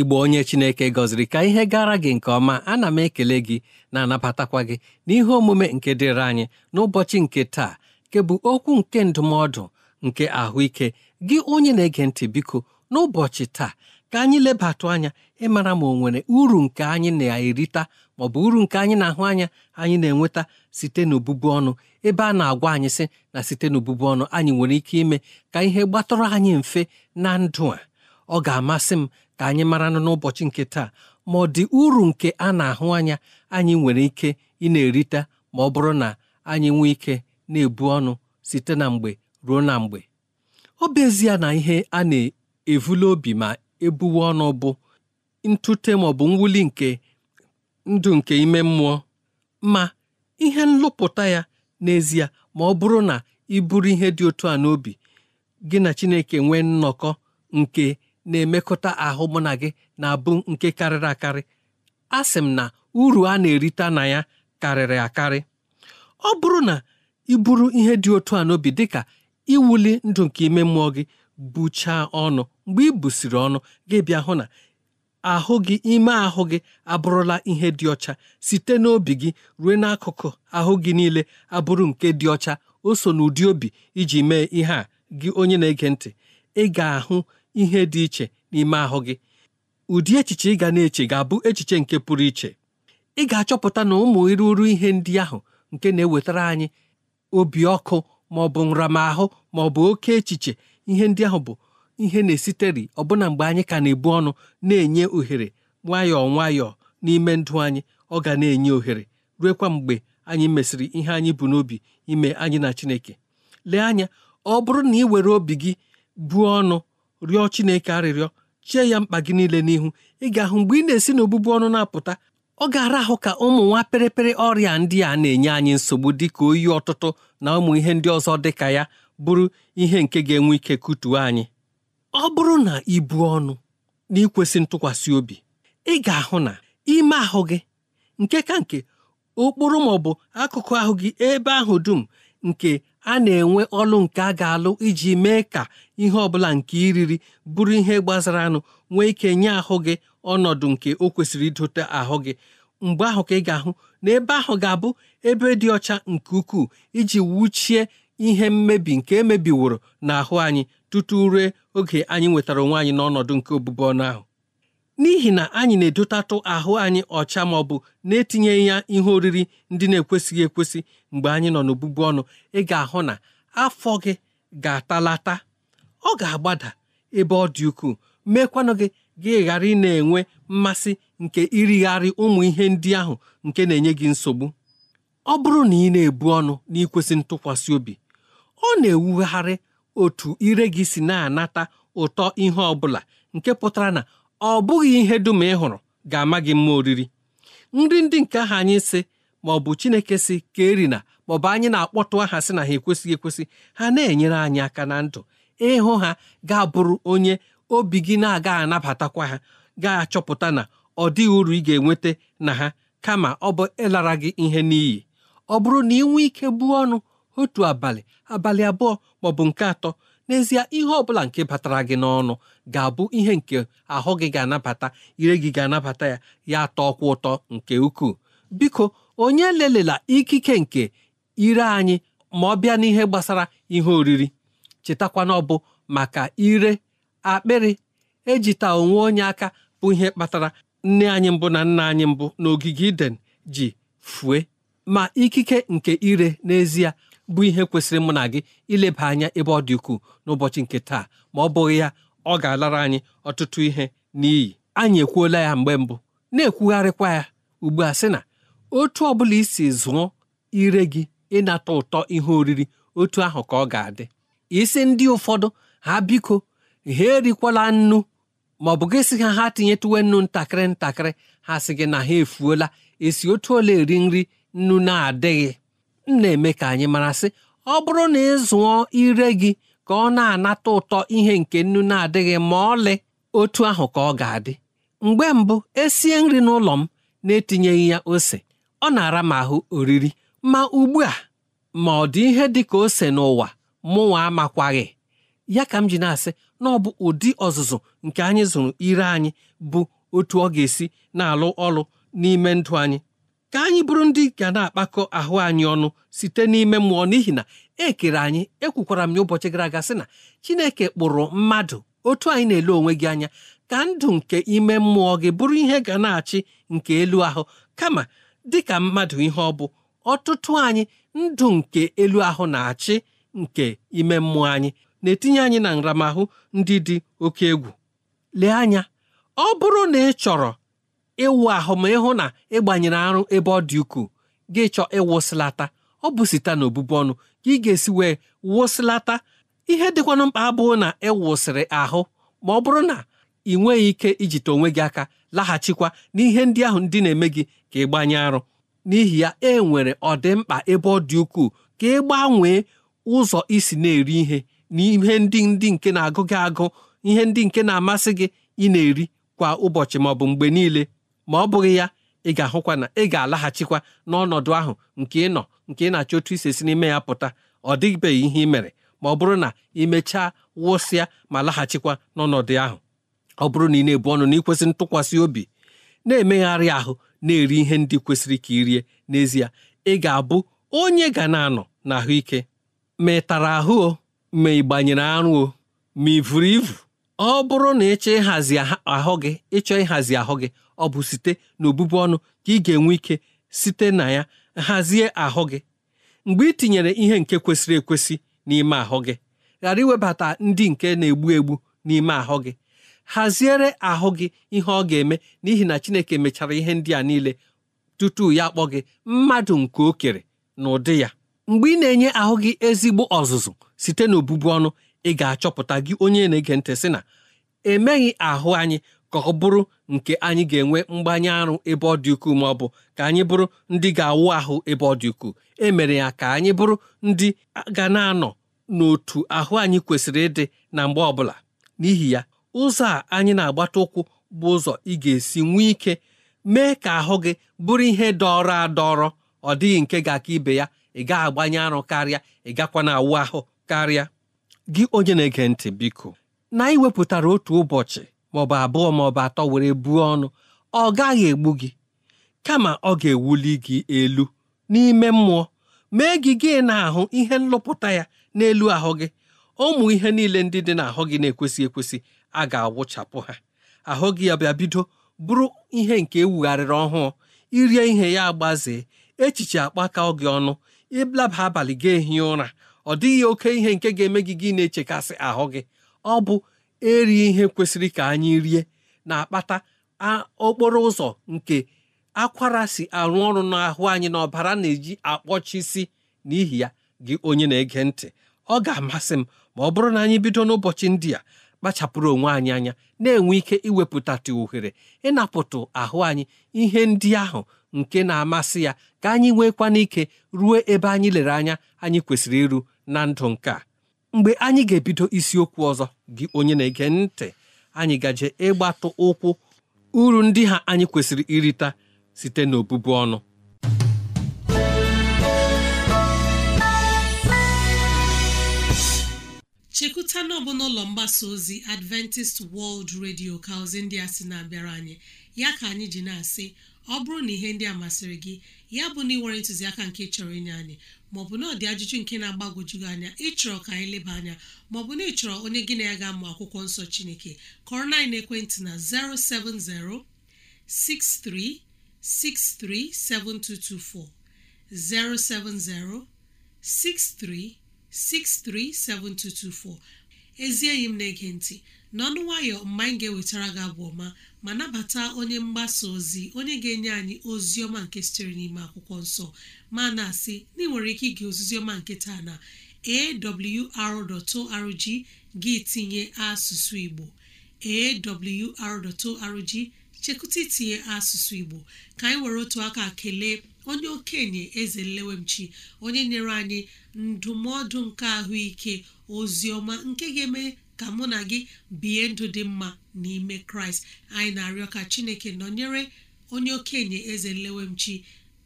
igbo onye chineke gọziri ka ihe gara gị nke ọma ana m ekele gị na-anabatakwa gị n'ihe omume nke dịrị anyị n'ụbọchị nke taa nke bụ okwu nke ndụmọdụ nke ahụike gị onye na-ege ntị biko n'ụbọchị taa ka anyị lebatụ anya ịmara ma ọ nwere uru nke anyị na-erita ma ọ bụ uru nke anyị na-ahụ anya anyị na-enweta site n'obubu ọnụ ebe a na-agwa anyị sị na site n'obubu ọnụ anyị nwere ike ime ka ihe gbatọrọ anyị mfe na ndụ a ọ ga-amasị m ka anyị maranụ n'ụbọchị nke taa ma ọ dị uru nke a na-ahụ anya anyị nwere ike ị na-erite ma ọ bụrụ na anyị nwee ike na-ebu ọnụ site na mgbe ruo na mgbe ọ bụ na ihe a na evula obi ma ebuwe ọnụ bụ ntute ma ọ bụ mwuli nke ndụ nke ime mmụọ ma ihe nlụpụta ya n'ezie ma ọ bụrụ na ị bụrụ ihe dị otu a n'obi gị na Chineke nwee nnọkọ nke na-emekọta ahụ mụ na gị na-abụ nke karịrị akarị a sị m na uru a na-erita na ya karịrị akarị ọ bụrụ na ị ihe dị otu a n'obi dịka iwuli ndụ nke ime mmụọ gị buchaa ọnụ mgbe ibusiri busiri ọnụ gị bịa hụ na ahụ gị ime ahụ gị abụrụla ihe dị ọcha site n'obi gị ruo n'akụkụ ahụ gị niile abụrụ nke dị ọcha o so n'ụdị obi iji mee ihe a gị onye na-ege ntị ị ga-ahụ ihe dị iche n'ime ahụ gị ụdị echiche ị ga na-eche ga-abụ echiche nke pụrụ iche ị ga-achọpụta na ụmụ ịrụrụ ihe ndị ahụ nke na-ewetara anyị obi ọkụ ma ọ bụ nramahụ ma ọ bụ oke echiche ihe ndị ahụ bụ ihe na-esiteri ọbụna mgbe anyị ka na-ebu ọnụ na-enye ohere nwayọọ nwayọọ n'ime ndụ anyị ọ ga na-enye ohere ruekwa mgbe anyị mesịrị ihe anyị bụ n'obi ime anyị na Chineke lee anya ọ bụrụ na ị were obi gị buo ọnụ rịọ Chineke arịrịọ chie ya mkpa gị niile n'ihu ị ga-ahụ mgbe ị na-esi n'obụbụ ọnụ na-apụta ọ ga-ara ahụ ka ụmụ nwa pịrịpịrị ọrịa ndị a na-enye anyị nsogbu dị ka oyi ọtụtụ na ụmụ ihe ndị ọzọ dị ka ya bụrụ ihe nke ga-enwe ike kụtuo anyị ọ bụrụ na ibu ọnụ na ikwesị ntụkwasị obi ị ga-ahụ na ime ahụ gị nke ka nke okporo ma ọ bụ akụkụ ahụ gị ebe ahụ dum nke a na-enwe ọlụ nke a ga-alụ iji mee ka ihe ọbụla nke iriri bụrụ ihe gbazara anụ nwee ike nye ahụ gị ọnọdụ nke o kwesịrị idote ahụ gị mgbe ahụ ka ị ga-ahụ na ebe ahụ ga-abụ ebe dị ọcha nke ukwuu iji wuchie ihe mmebi nke emebiworo n'ahụ anyị tutu ruo oge anyị nwetara onwe anyị n'ọnọdụ nke obubu ọnụ ahụ n'ihi na anyị na-edotatụ ahụ anyị ọcha ma ọ bụ na-etinyeghị ya ihe oriri ndị na-ekwesịghị ekwesị mgbe anyị nọ n'obụbu ọnụ ị ga-ahụ na afọ gị ga-atalata ọ ga-agbada ebe ọ dị ukwuu meekwanụ gị gị ghara ị na-enwe mmasị nke irigharị ụmụ ihe ndị ahụ nke na-enye gị nsogbu ọ bụrụ na ị na-ebu ọnụ n'ikwesị ntụkwasị obi ọ na-ewugharị otu ire gị si na-anata ụtọ ihe ọ bụla nke pụtara na ọ bụghị ihe dum ị hụrụ ga-ama gị mma oriri nri ndị nke ahụ anyị si ma ọ bụ chineke si ka erina maọbụ anyị na-akpọtụ aha sị na ha ekwesịghị ekwesị ha na-enyere anyị aka na ndụ ịhụ ha ga-abụrụ onye obi gị na-aga anabatakwa ha ga-achọpụta na ọ dịghị uru ị ga-enweta na ha kama ọ bụ ịlara gị ihe n'iyi ọ bụrụ na ị nwee ike buo ọnụ otu abalị abalị abụọ maọbụ nke atọ n'ezie ihe ọ bụla nke batara gị n'ọnụ ga-abụ ihe nke ahụ gị ga-anabata ire gị ga-anabata ya ya tọọkwa ụtọ nke ukwuu biko onye lelela ikike nke ire anyị ma ọ bịa n'ihe gbasara ihe oriri chetakwa ọ bụ maka ire akpịrị ejita onwe onye aka bụ ihe kpatara nne anyị mbụ na nna anyị mbụ n'ogige iden ji fue ma ikike nke ire n'ezie bụ ihe kwesịrị mụ na gị ileba anya ebe ọ dị ukwuu n'ụbọchị nke taa ma ọ bụghị ya ọ ga-alara anyị ọtụtụ ihe n'iyi anyị ekwuola ya mgbe mbụ na-ekwugharịkwa ya ugbu a sị na otu ọ bụla isi zụọ ire gị ịnata ụtọ ihe oriri otu ahụ ka ọ ga-adị isi ndị ụfọdụ ha biko ha erikwala nnu ma ọ bụ gị sị ha ha tinyetuwe nnu ntakịrị ntakịrị ha sị gị na ha efuola esi otu ole eri nri nnu na-adịghị m na-eme ka anyị mara sị ọ bụrụ na ịzụọ ire gị ka ọ na-anata ụtọ ihe nke nnu na-adịghị ma ọlị otu ahụ ka ọ ga-adị mgbe mbụ esie nri n'ụlọ m na-etinyeghị ya ose ọ na-ara m ahụ oriri ma ugbu a ma ọ dị ihe dị ka ose n'ụwa mụnwa amakwaghị ya ka m ji na-asị na ọ bụ ụdị ọzụzụ nke anyị zụrụ ire anyị bụ otu ọ ga-esi na-alụ ọrụ n'ime ndụ anyị ka anyị bụrụ ndị ga na-akpakọ ahụ anyị ọnụ site n'ime mmụọ n'ihi na ekere anyị ekwukwara m ya ụbọchị gara aga sị na Chineke kpụrụ mmadụ otu anyị na-ele onwe gị anya ka ndụ nke ime mmụọ gị bụrụ ihe ga na-achị nke elu ahụ kama dịka mmadụ ihe ọ bụ ọtụtụ anyị ndụ nke elu ahụ na-achị nke ime mmụọ anyị na-etinye anyị na nramahụ ndị dị oke egwu lee anya ọ bụrụ na ị chọrọ ịwụ ahụ ma ịhụ na ịgbanyere arụ ebe ọ dị ukwuu gị chọọ ịwụsịlata ọ bụ site na obụbụ ọnụ ka ị ga-esi wee wụsịlata ihe dịkwanụ mkpa abụọ na ịwụsịrị ahụ ma ọ bụrụ na ị nweghị ike ijite onwe gị aka laghachikwa n'ihe ndị ahụ ndị na-eme gị ka ị gbanye arụ n'ihi ya e nwere ọdịmkpa ebe ọ dị ukwuu ka ị gbanwee ụzọ isi na-eri ihe na ihe ndị ndị nke na-agụ gị agụ ihe ndị nke na-amasị gị ị na-eri kwa ụbọchị maọbụ mgbe niile ma ọ bụghị ya ị ga-ahụkwa na ị ga-alaghachikwa n'ọnọdụ ahụ nke ị nọ nke ị na-achọ otu isi si n'ime ya pụta ọ dịbeghị ihe ị mere ma ọ bụrụ na ị mechaa wụsịa ma laghachikwa n'ọnọdụ ahụ ọ bụrụ na ị na-ebu ọnụ na ịkwesị ntụkwasị obi na-emegharị ahụ na-eri ihe ndị kwesịrị ka ị rie n'ezie ị ga-abụ onye ga na-anọ n'ahụike ma ị tara ahụ o ma ị gbanyere arụ o ma ị vụrụ ivu ọ bụrụ na ịchọ ịhazi ahụ gị ịchọ ịhazi ahụ gị ọ bụ site n'obubu ọnụ ka ị ga-enwe ike site na ya hazie ahụ gị mgbe ị tinyere ihe nke kwesịrị ekwesị n'ime ahụ gị ghara iwebata ndị nke na-egbu egbu n'ime ahụ gị haziere ahụ gị ihe ọ ga-eme n'ihi na Chineke mechara ihe ndị a niile tutu ya akpọ gị mmadụ nke o kere na ụdị ya mgbe ị na-enye ahụ gị ezigbo ọzụzụ site n'obubu ọnụ ị ga-achọpụta gị onye na-ege ntị sị na emeghị ahụ anyị ka ọ bụrụ nke anyị ga-enwe mgbanye arụ ebe ọ dị ukwuu ma ọ bụ ka anyị bụrụ ndị ga-awụ ahụ ebe ọ dị ukwuu e mere ya ka anyị bụrụ ndị ga na-anọ n'otu ahụ anyị kwesịrị ịdị na mgbe ọbụla n'ihi ya ụzọ a anyị na-agbata ụkwụ bụ ụzọ ị ga-esi nwee ike mee ka ahụ gị bụrụ ihe dọrọ adọrọ ọ dịghị nke ga-aka ibe ya ị gaa agbanye arụ karịa ị gakwa na awụ ahụ karịa gị onye na-ege ntị biko na anyị wepụtara otu ụbọchị maọbụ abụọ maọbụ atọ were buo ọnụ ọ gaghị egbu gị kama ọ ga-ewuli gị elu n'ime mmụọ mee gị gị na-ahụ ihe nlụpụta ya n'elu ahụ gị ụmụ ihe niile ndị dị n'ahụ gị na-ekwesị ekwesị a ga-awụchapụ ha ahụ gị ya bịa bido bụrụ ihe nke ewugharịrị ọhụụ irie ihe ya agbazee echiche akpaka gị ọnụ ịlaba abalị ga ehi ụra ọ dịghị oke ihe nke ga-eme gị gị na-echekasị ahụ gị ọ bụ erighị ihe kwesịrị ka anyị rie na-akpata okporo ụzọ nke akwara si arụ ọrụ n'ahụ anyị na ọbara na-eji akpọchisi n'ihi ya gị onye na-ege ntị ọ ga-amasị m ma ọ bụrụ na anyị bido n'ụbọchị ndị a kpachapụrụ onwe anyị anya na-enwe ike iwepụtatụ ohere ịnapụtụ ahụ anyị ihe ndị ahụ nke na-amasị ya ka anyị nwekwana ike ruo ebe anyị lere anya anyị kwesịrị iru na ndụ nke a mgbe anyị ga-ebido isiokwu ọzọ gị onye na-ege ntị anyị gaje ịgbatụ ụkwụ uru ndị ha anyị kwesịrị irita site n'obodo ọnụ chekwuta na ọbụ n'ụlọ mgbasa ozi adventist world radio ka ozi ndị a sị na-abịara anyị ya ka anyị ji na-asị ọ bụrụ na ihe ndị a masịrị gị ya bụ na ịnwere ntụziaka nke chọrọ inye anyị maọbụ na ọ dị ajụjụ nke na-agbagwoju anya ịchọrọ ka anyị leba anya maọbụ na ịchọrọ onye gị na ya ga-amụ akwụkwọ nsọ chineke kọrọ na ekwentị na 07063637224 07063 637224 ezi enyi m na-ege ntị n'ọnụ nwayọ mgbe anyị ga-ewetara gị abụ ọma ma nabata onye mgbasa ozi onye ga-enye anyị ozi ọma nke sitere n'ime akwụkwọ nsọ ma na-asị na ị nwere ike ige ozizi ọma nke taa na awr.org gị tinye asụsụ Igbo awr.org chekụta itinye asụsụ Igbo ka anyị were otu aka kelee onye okenye eze nlewemchi onye nyere anyị ndụmọdụ nke ahụike ozi nke ga-eme ka mụ na gị bie ndụ dị mma n'ime kraịst anyị na-arịọ ka chineke nọnyere onye okenye eze nlewemchi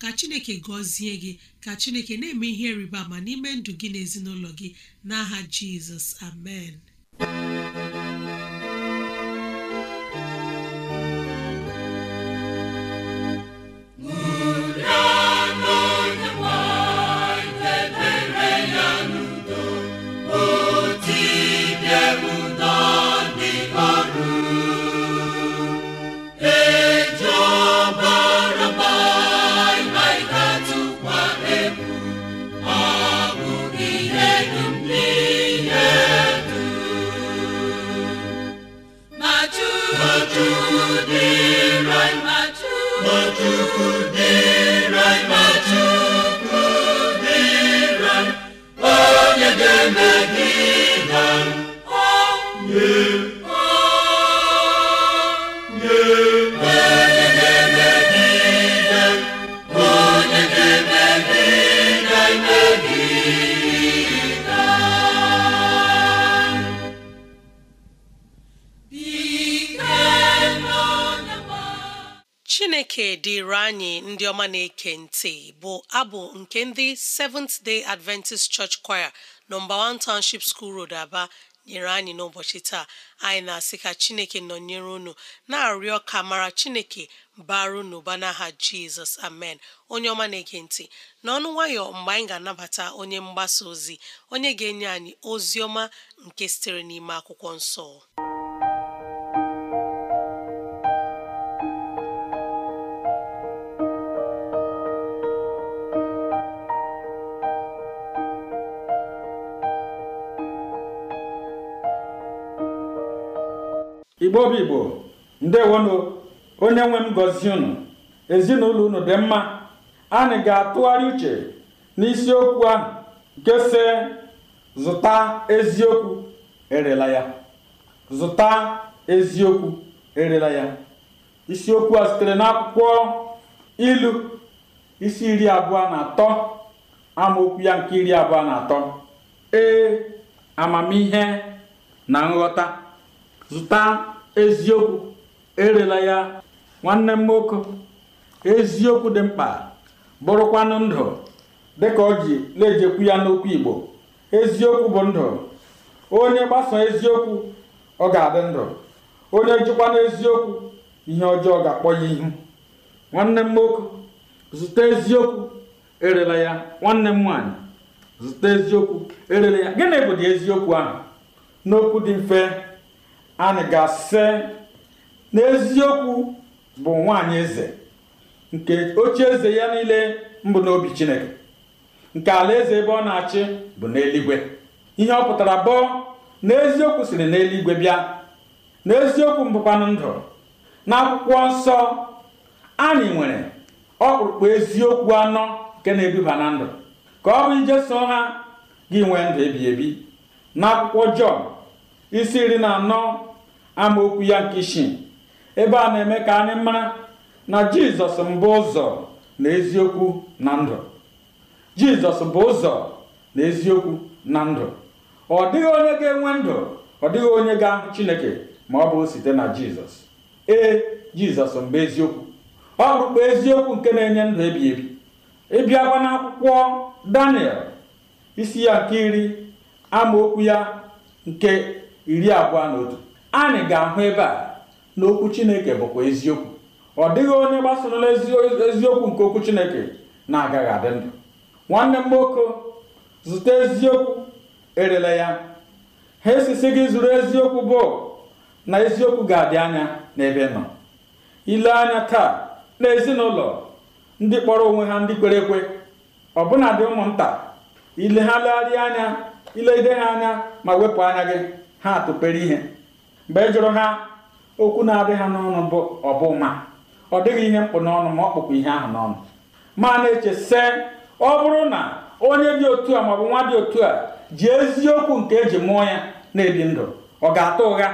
ka chineke gọzie gị ka chineke na-eme ihe rịba ma n'ime ndụ gị na ezinụlọ gị n'aha jizọs amen ndị ọma na-eke ntị bụ abụ nke ndị Seventh Day Adventist Church Choir nọmba 1 Township School Road Aba nyere anyị n'ụbọchị taa anyị na-asị ka Chineke nọnyere unu na-arịọ ka mara Chineke baru n'ụba n'aha Jizọs amen onye ọma na-ege ntị n'ọnụ nwayọ mgbe anyị ga-anabata onye mgbasa ozi onye ga-enye anyị ozi ọma nke sitere n'ime akwụkwọ nsọ igbo bụ igbo ndewonu onye nwe m gọzie unu ezinụlọ unu dị mma anyị ga-atụgharị uche n'isiokwu ahụ nke si zụta eziokwu erela ya zụta eziokwu erela isiokwu a sitere n'akwụkwọ ilu isi iri abụọ na atọ amaokwu ya nke iri abụọ na atọ ee amamihe na nghọta zụta eziokwu erela ya nwanne m nwoke eziokwu dị mkpa bụrụkwanụ ndụ dịka ọ ji na-ejekwu ya n'okwu Igbo eziokwu bụ ndụ onye gbasa eziokwu ọ ga-adị ndụ onye jikwa n'eziokwu ihe ọjọọ ga-akpọ ya ihu nwanne m nwoke zụta eziokwu erela ya nwanne m nwaanyị zụta eziokwu erela ya gịnị bụ eziokwu ahụ n'okwu dị mfe anị ga-asị n'eziokwu bụ nwanyị eze nke oche eze ya niile mbụ n'obi chineke nke alaeze ebe ọ na-achị bụ n'eluigwe ihe ọ pụtara bụ n'eziokwu siri n'eluigwe bịa n'eziokwu mbụkwanụ ndụ n'akwụkwọ nsọ anyị nwere ọkpụrụkpụ eziokwu anọ nke na ha na ndụ ka ọ bụ ije ha gị nwee ndụ ebi ebi n'akwụkwọ Jọn isi iri na anọ amaokwu ya nke isi ebe a na-eme ka anyị mara na jizọs mbụ ụzọ na eziokwu na ndụ jizọs bụ ụzọ na eziokwu na ndụ ọ dịghị onye ga-enwe ndụ ọ dịghị onye ga-ahụ chineke ma ọ bụrụ site na jizọs ee jizọs mbụ eziokwu ọ bụrụkwa eziokwu nke na-enye ndụ ebi ebi ịbịakwa n'akwụkwọ daniel isi ya nke iri amaokwu ya nke iri abụọ na otu anyị ga-ahụ ebe a na okwu chineke bụkwa eziokwu ọ dịghị onye gbasorola eziokwu nke okwu chineke na-agaghị adị ndụ nwanne m nwoke zụta eziokwu erela ya ha esisi gị zụrụ eziokwu bụ na eziokwu ga-adị anya n'ebe nọ ile anya taa na ezinụlọ ndị kpọrọ onwe ha ndị kwere ekwe ọbụna dị ụmụnta ile ha legharịa anya ide ha anya ma wepụ anya gị ha atụpere ihe mgbe e jụrụ ha okwu na-adị ha n'ọnụ bụ ọbụma ọ dịghị ihe mkpụ n'ọnụ ma ọ kpụkwa ihe ahụ n'ọnụ ma na-eche se ọ bụrụ na onye dị otu a maọbụ nwa dị otu a ji eziokwu nke eji mụọ ya na-ebi ndụ ọ ga-ata ụgha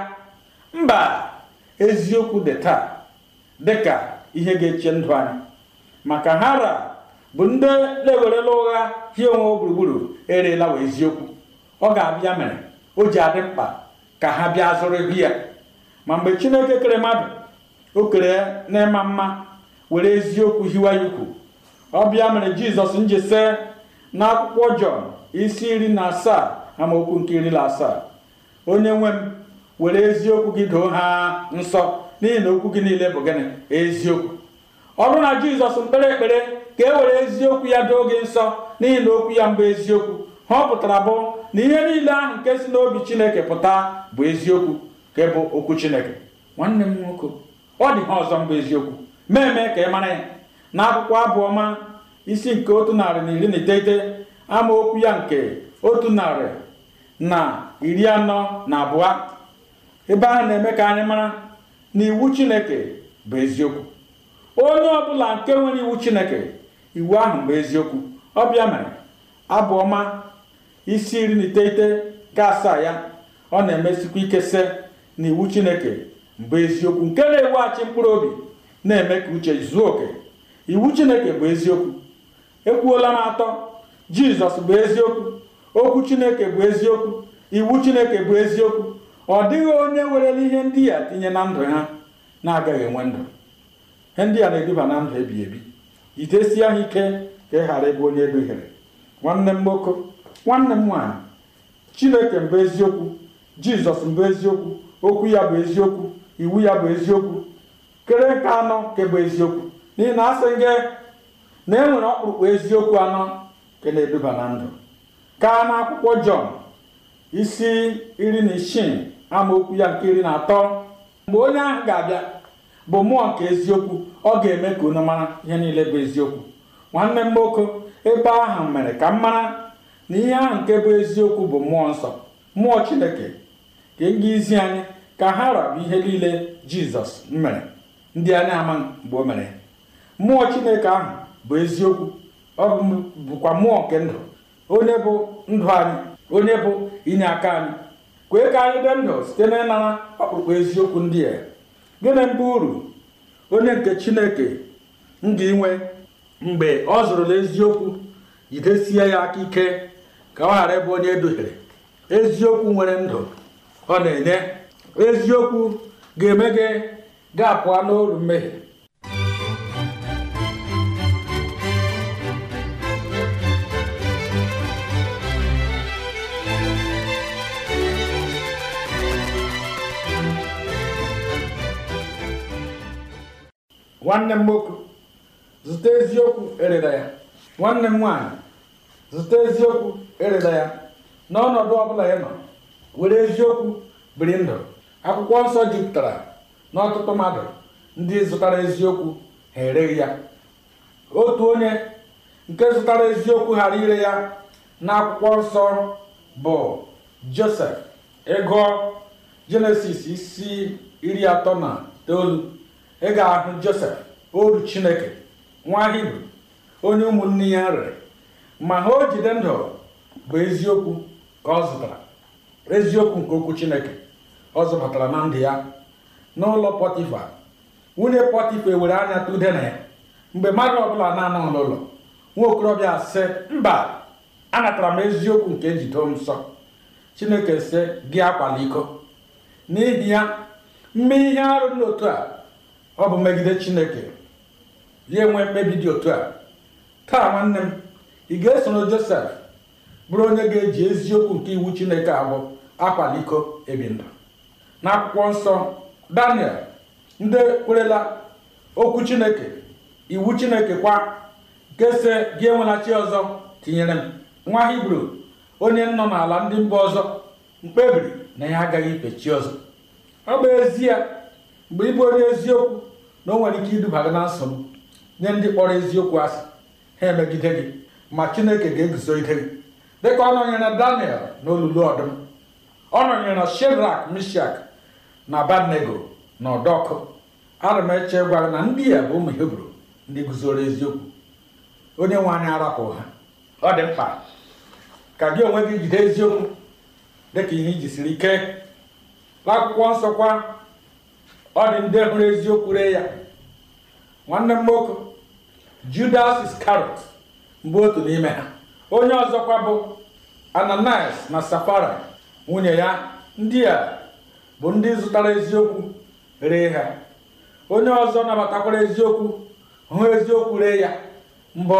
mba eziokwu dị taa dịka ihe ga-eche ndụ anyị maka hara bụ ndị na-ewerela ụgha hie onwe gburugburu erela eziokwu ọ ga-abịa mere o ji adị mkpa ka ha bịa zụrụ ego ya ma mgbe chineke kere mmadụ o kere n'ịma mma were eziokwu hiwa ya ukwu ọ bịa mere jizọs njese na akwụkwọ jọn isi iri na asaa amaokwu nke iri na asaa onye nwe m were eziokwu gị doo ha nsọ n'ihi na okwu gị niile bụ gịnị eziokwu ọ bụrụ na jizọs mkpere ekpere ka e were eziokwu ya doo gị nsọ n'ihi na okwu ya mbụ eziokwu ha ọ pụtara bụ na ihe niile ahụ nke si n'obi chineke pụta bụ eziokwu ka bụ okwu chineke nwanne m nwoke ọ dị ha ọzọ mbụ eziokwu meeme ka ị mara ya na akwụkwọ abụọma isi nke otu narị na iri na iteghete amaokwu ya nke otu narị na iri anọ na abụọ ebe ahụ na-eme ka anyị mara na iwu chineke bụ eziokwu onye ọbụla nke nwere iwu chineke iwu ahụ bụ eziokwu ọbịa mere abụọma isi iri na iteghete nke asaa ya ọ na-emesikwa ike se na iwu chineke bụ eziokwu nke na-eweghachi mkpụrụ obi na-eme ka uche zuo oke iwu chineke bụ eziokwu ekwuola m atọ jizọs bụ eziokwu okwu chineke bụ eziokwu iwu chineke bụ eziokwu ọ dịghị onye werela ihe ndị a tinye na ndụ ha na-agaghị enwe ndụ ihe ndị na-eduba na ndụ ebi ebi jidesie ha ike ka ị ghara ịbụ onye edughere nwanne m nwoke nwanne m nwaanyị chineke mbụ eziokwu jizọs mbụ eziokwu okwu ya bụ eziokwu iwu ya bụ eziokwu kere nke anọ kebụ eziokwu n'ihi na asị gị na e nwere ọkpụrụkpụ eziokwu anọ nke na-eduba na ndụ na n'akwụkwọ jọn isi iri na isii amaokwu ya nke iri na atọ mgbe onye ahụ ga-abịa bụ mmụọ nke eziokwu ọ ga-eme ka unu mara ihe niile bụ eziokwu nwanne m nwoke ebe ahụ mere ka m mara na ihe ahụ nke bụ eziokwu bụ mmụọ nsọ mmụọ chineke ka izi e anyị ka ha rabụ ihe niile jizọs mere ndị a na-ama mgbe o mere mmụọ chineke ahụ bụ eziokwu ọ bụkwa mmụọ nke ndụ onye bụ ndụ anyị onye bụ inye aka anyị kwee ka anyị dị ndụ site na ịnara ọkpụkpọ eziokwu ndị a gịnị mbụ uru onye nke chineke m ga-inwe mgbe ọ zụrụla eziokwu jidesie ya aka ike ka ọ ghara ịbụ onye eduhiere eziokwu nwere ndụ ọ na-enye eziokwu ga-eme gị ga-apụa n'olu mmehie nwanne m nwoke zụta eziokwu erere ya nwanne m nwaanyị zụta eziokwu erela ya n'ọnọdụ ọbụla ị nọ were eziokwu biri ndụ akwụkwọ nsọ jupụtara n'ọtụtụ mmadụ ndị zụtara eziokwu ha ereghị ya otu onye nke zụtara eziokwu ghara ire ya na akwụkwọ nsọ bụ josef ego jenesis isi iri atọ na itoolu ị ga-ahụ josef oru chineke nwa hibru onye ụmụnne ya rere ma ha o jide ndụ bụ eziokwu ka ọ zụtara eziokwu nke okwu chineke ọ zụbatara na ndụ ya n'ụlọ pọtịfa nwunye pọtịfa ewere anya tụde na ya mgbe mmadụ ọbụla na-anọ n'ụlọ nwa okorobịa sị mba anatara m eziokwu nke njido m nsọ chineke sị gị akwala iko n'ihi ya mme ihe arụ n'otu a ọ bụ megide chineke ya enwe mkpebi dị otu a taa nwanne m ị ga-esoro josef bụrụ onye ga-eji eziokwu nke iwu chineke abụ akwaliko ebinda na akwụkwọ nsọ daniel ndị kwerela okwu chineke iwu chineke kwa nke si gị enwela chi ọzọ tinyere m nwa hibru onye nọ n'ala ndị mba ọzọ mkpebiri na ya agaghị ife chi ọzọ ọ bụ ezie mgbe ịbụ onye eziokwu na o nwere ike iduba gị na nsogbu nye ndị kpọrọ eziokwu asị ha emegide gị ma chineke ga-eguzogide gị dịka ọ nọnyere na daniel n'olulu ọdụm ọ nọnyere na shedrak mishak na banego na ọdọkụ ana eche gwara na ndị ya e bụ ụmụ hebru ndị guzoro eziokwu onye nwe anyị arapụ ha ọ dị mkpa ka gị onwe gị jide eziokwu dịka ihe iji siri ike n'akwụkwọ nsọ kwa ọ dị ndị hụrụ eziokwu ree ya nwanne m nwoke judas iskarot mbụ otu n'ime ha onye ọzọkwa bụ ananias na safara nwunye ya ndị a bụ ndị zụtara eziokwu ree ha onye ọzọ nabatakwara eziokwu hụ eziokwu ree ya mbọ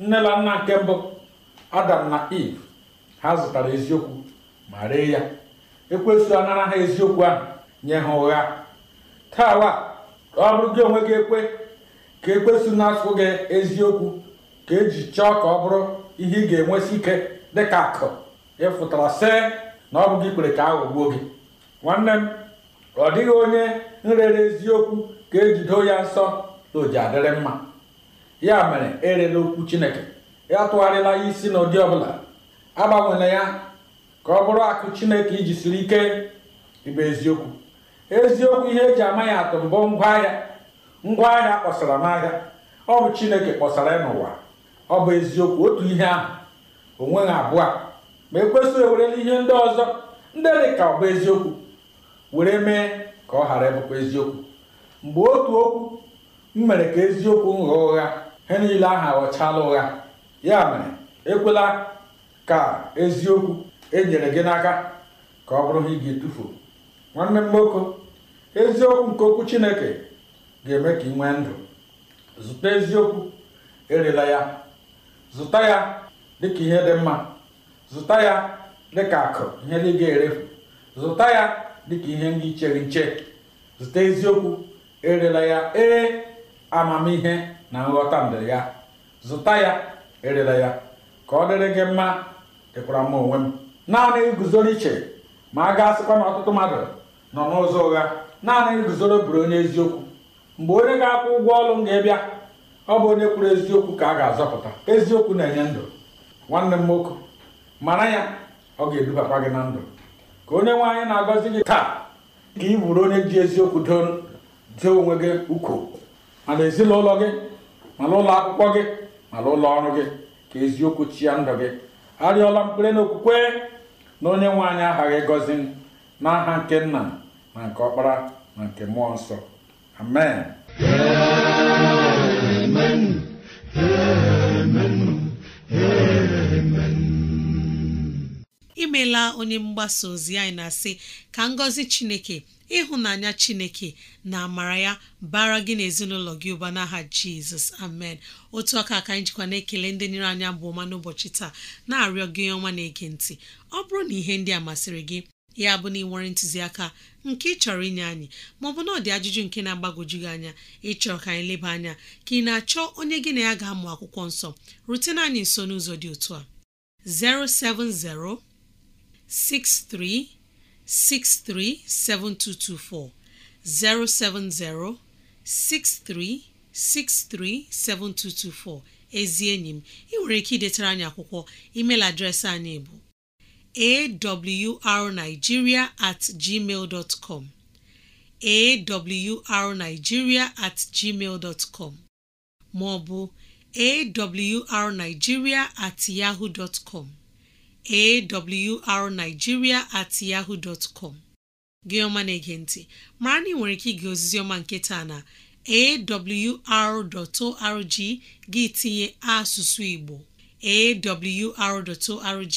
nne na nna nke mbụ adam na eve ha zụtara eziokwu ma ree ya ekwesụ anara ha eziokwu ahụ nye ha ụgha taawa ọ bụrụ gị onwe gị ekwe ka ekwesu na-asụ gị eziokwu ka eji chọọ ka ọ bụrụ ihe ị ga-enwesi ike dịka akụ ịfụtara see na ọ bụghị ikpere ka aghọgbuo gị nwanne m ọ dịghị onye nrere eziokwu ka ejido ya nsọ na oji adịrị mma ya mere erela okwu chineke ya tụgharịla ya isi n'ụdị ọbụla agbanwela ya ka ọ bụrụ akụ chineke iji siri ike ịbụ eziokwu eziokwu ihe eji ama ya atụ mbụ ngwaahịa ngwaahịa kpọsara n'ahịa ọ bụ chineke kpọsara ya n'ụwa ọ bụ eziokwu otu ihe ahụ onweghị abụọ a ma ekwesịghị ewerela ihe ndị ọzọ ndị dị ka ọ bụ eziokwu were mee ka ọ ghara ịbụkwa eziokwu mgbe otu okwu m mere ka eziokwu ghọọ ụgha ha niile ahụ aghọchala ụgha ya mere ekwela ka eziokwu enyere gị n'aka ka ọ bụrụ ha ị ga-etufu nwanne m nwoke eziokwu nke okwu chineke ga-eme ka ị nwee ndụ zụta eziokwu erela ya zụta ya dịka ihe dị mma zụta ya dịka akụ ihe dị ga-erefu zụta ya dịka ihe ndị ichere nche zụta eziokwu erela ya ee amamihe na nghọta ndụ ya zụta ya erela ya ka ọ dịrị gị mma dịkwara m onwe m naanị iguzoro iche ma a ga-asịkwa na ọtụtụ mmadụ nọ n'ụzọ ụgha naanị iguzoro buru onye eziokwu mgbe onye ga-akwụ ụgwọ ọrụ m ga-abịa ọ bụ onye kwuru eziokwu ka a ga-azọpụta eziokwu na-enye ndụ nwanne m nwoke mara ya ọ ga-edubakwa gị na ndụ ka onye nwaanyị na-agọzi gị taa ka ị bụrụ onye ji eziokwu dee onwe gị ukwu mana ezinụlọ gị mana ụlọ akwụkwọ gị mana ụlọ ọrụ gị ka eziokwu chia ndụ gị arịọla mkpere n'okwukwe na onye nwaanyị aha gị ịgọzi n'aha nke nna na nke ọkpara na nke mmụọ nsọ amen imeela onye mgbasa ozi anyị na-asị ka ngọzi chineke ịhụnanya chineke na amara ya bara gị n'ezinụlọ gị ụba n'aha jizọs amen otu aka ka anyị jikwa na-ekele ndị nyere anya bụ ọma n'ụbọchị taa na-arịọ gị ọma na-ege ntị ọ bụrụ na ihe ndị a masịrị gị ya bụ na ị nwere ntụziaka nke ị chọrọ inye anyị maọbụ na ọ dị ajụjụ nke na-agbagoju gị anya ịchọrọ ka anyị leba anya ka ị na-achọ onye gị na ya ga-amụ akwụkwọ nsọ rutena anyị nso n'ụzọ dị otu a 07063637224 07063637224 ezi enyi m ị nwere ike idetara anyị akwụkwọ emeil adreesị anyị bụ awrnigeria at gmail com awrnigeria at gmail com ma ọ at yahoo com awrnigeria at yahoo com gị na-ege mara na ị nwere ike ige ozizi ọma nke taa na awr.org gị tinye asụsụ Igbo awr.org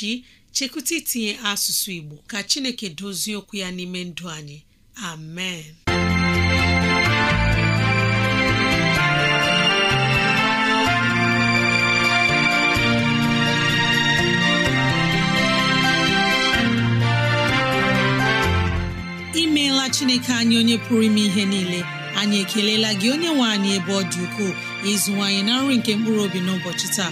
chekwụta itinye asụsụ Igbo ka Chineke dozie okwu ya n'ime ndụ anyị amen imeela Chineke anyị onye pụrụ ime ihe niile anyị ekelela gị onye nwe anyị ebe ọ dị ukwuu ịzụwanyị na nri nke mkpụrụ obi n'ụbọchị taa